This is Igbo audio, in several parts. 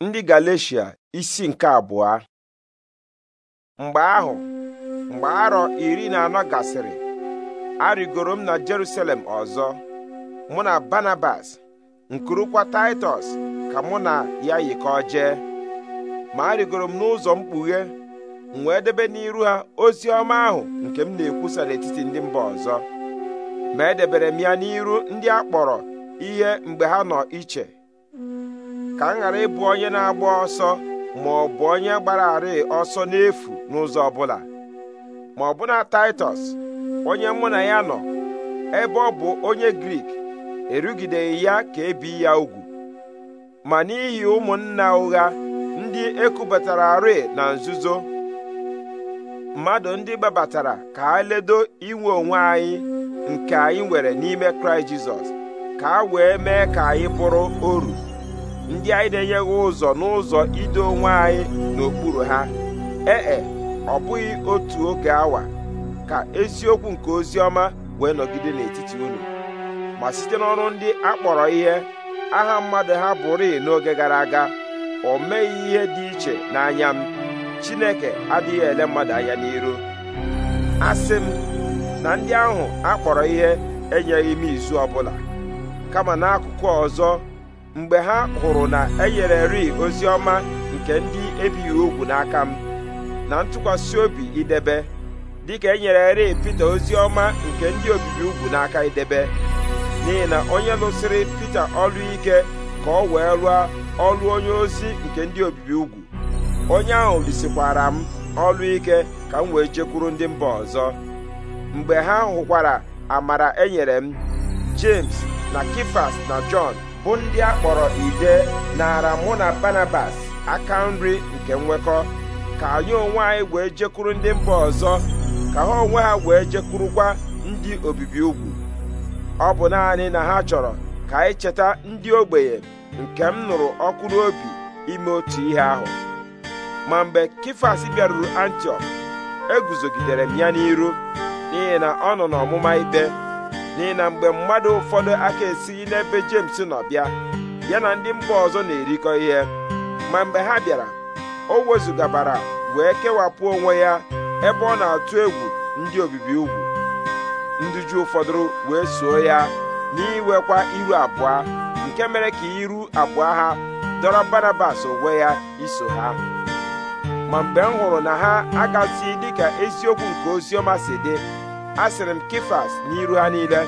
ndị Galeshia isi nke abụọ mgbe ahụ mgbe arọ iri na anọ gasịrị arịgoro m na Jerusalem ọzọ mụ na Barnabas nkurukwa Taịtọs ka mụ na ya yikọọ jee ma arịgoro m n'ụzọ mkpughe m wee debe n'iru ha ozi ọma ahụ nke m na-ekwusa n'etiti ndị mba ọzọ ma edebere m ya n'iru ndị a kpọrọ ihe mgbe ha nọ iche ka m ghara ịbụ onye na-agba ọsọ ma ọ bụ onye gbara arị ọsọ n'efu n'ụzọ ọbụla ma ọbụna Taịtọs onye mụ na ya nọ ebe ọ bụ onye Grik erugideghị ya ka ebi ya ugwu ma n'ihi ụmụnna ụgha ndị ekubatara arị na nzuzo mmadụ ndị gbabatara ka a ledo inwe onwe anyị nke anyị nwere n'ime Kraịst Jizọs ka a wee mee ka anyị bụrụ oru ndị anyị na-enyeghị ụzọ n'ụzọ ido onwe anyị n'okpuru ha ee e, ọ bụghị otu oge awa ka eziokwu nke ozi ọma wee nọgide n'etiti unu ma site n'ọrụ ndị akpọrọ ihe aha mmadụ ha bụrịị n'oge gara aga o meghị ihe dị iche n'anya m Chineke adịghị ele mmadụ anya n'iru asị m na ndị ahụ akpọrọ ihe enyeghị m izu ọbụla kama n'akụkụ ọzọ mgbe ha hụrụ na e ri ozi ọma nke ndị ebighị ugwu n'aka m na ntụkwasị obi idebe dịka enyereri Pita ozi ọma nke ndị obibi ugwu n'aka idebe n'ihi na onye lụsịrị Pita ọlụike ike ka ọ wee rụọ ọlụ onye ozi nke ndị obibi ugwu onye ahụ lisikwara m ọlụ ike ka m wee jekwuru ndị mba ọzọ mgbe ha hụkwara amara enyere m James na Kifas na Jọn bụ ndị a kpọrọ ide nara mụ na Barnabas aka nri nke nwekọ ka anyị onwe anyị wee jekwuru ndị mba ọzọ ka ha onwe ha wee jekwurukwa ndị obibi ugwu ọ bụ naanị na ha chọrọ ka anyị cheta ndị ogbenye nke m nụrụ ọkụ n'obi ime otu ihe ahụ ma mgbe Kifas bịaruru Antiọk eguzogidere m ya n'iru n'ihi na ọ nọ n'ọmụma ikpe n'ihi na mgbe mmadụ ụfọdụ aka esighị n'ebe James nọ bịa ya na ndị mba ọzọ na-erikọ ihe ma mgbe ha bịara o wezugabara wee kewapụ onwe ya ebe ọ na-atụ egwu ndị obibi ugwu ndị ju ụfọdụ wee soo ya n'iwekwa iru abụọ nke mere ka iru abụọ ha dọrọ Barnabas onwe ya iso ha ma mgbe m hụrụ na ha agasighị dịka eziokwu nke oziọma si dị asịrị m kifas n'iru ha niile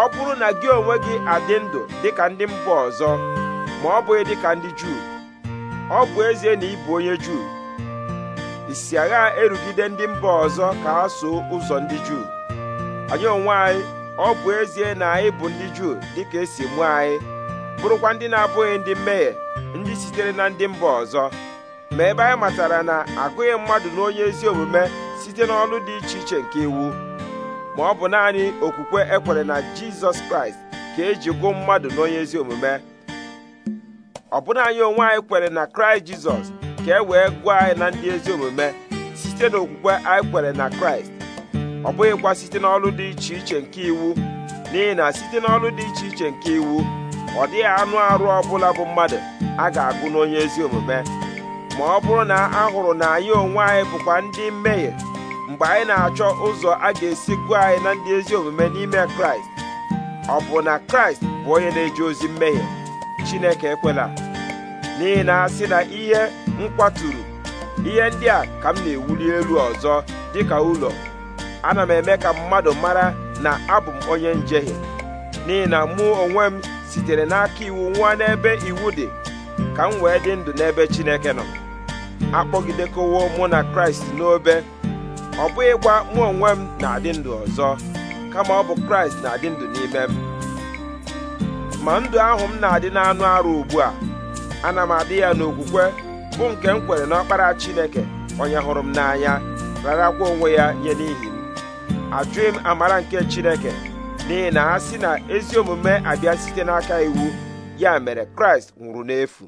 ọ bụrụ na gị onwe gị adị ndụ dịka ndị mba ọzọ ma ọ bụghị dịka ndị juu ọ bụ ezie na ị bụ onye juu isi agha erugide ndị mba ọzọ ka ha soo ụzọ ndị juu anyị onwe anyị ọ bụ ezie na anyị bụ ndị juu dịka esi mụọ anyị bụrụkwa ndị na-abụghị ndị mmehie ndị sitere na ndị mba ọzọ ma ebe anyị matara na agụghị mmadụ na onye ezi omume site n'ọlụ dị iche iche nke iwu ma ọ bụ naanị okwukwe ekwere na jizọs kraịst ka eji gụ mmadụ n'onye ezi omume ọ bụna anyị onwe anyị kwere na kraịst jizọs ka e wee gụọ anyị na ndị ezi omume site n'okwukwe anyị kwere na kraịst ọ bụghịkwa site n'ọlụ dị iche iche nke iwu n'ihi na site n'ọlụ dị iche iche nke iwu ọ dịghị anụ arụ ọbụla bụ mmadụ a ga-agụ n'onye ezi omume ma ọ bụrụ na a hụrụ na anyị onwe anyị bụkwa ndị mmehie mgbe anyị na-achọ ụzọ a ga-esi gụọ anyị na ndị ezi omume n'ime kraịst ọ bụ na kraịst bụ onye na-eji ozi mmehie chineke ekwela n'ihi na sị na ihe nkwaturu ihe ndị a ka m na-ewuli elu ọzọ dịka ụlọ ana m eme ka mmadụ mara na abụ m onye njehie n'ihi na mụ onwe m sitere n'aka iwu nwa n'ebe iwu dị ka m wee dị ndụ n'ebe chineke nọ akpọgidekowo mụ na kraịst n'obe ọ bụghịkwa mụ onwe m na-adị ndụ ọzọ kama ọ bụ kraịst na-adị ndụ n'ime m ma ndụ ahụ m na-adị n'anụ arụ ugbu a ana m adị ya n'okwukwe bụ nke m kwere n'ọkpara chineke onye hụrụ m n'anya rarakwa onwe ya nye n'ihi m ajụghị m amara nke chineke n'ihi na ha si na ezi omume abịa site n'aka iwu ya mere kraịst nwụrụ n'efu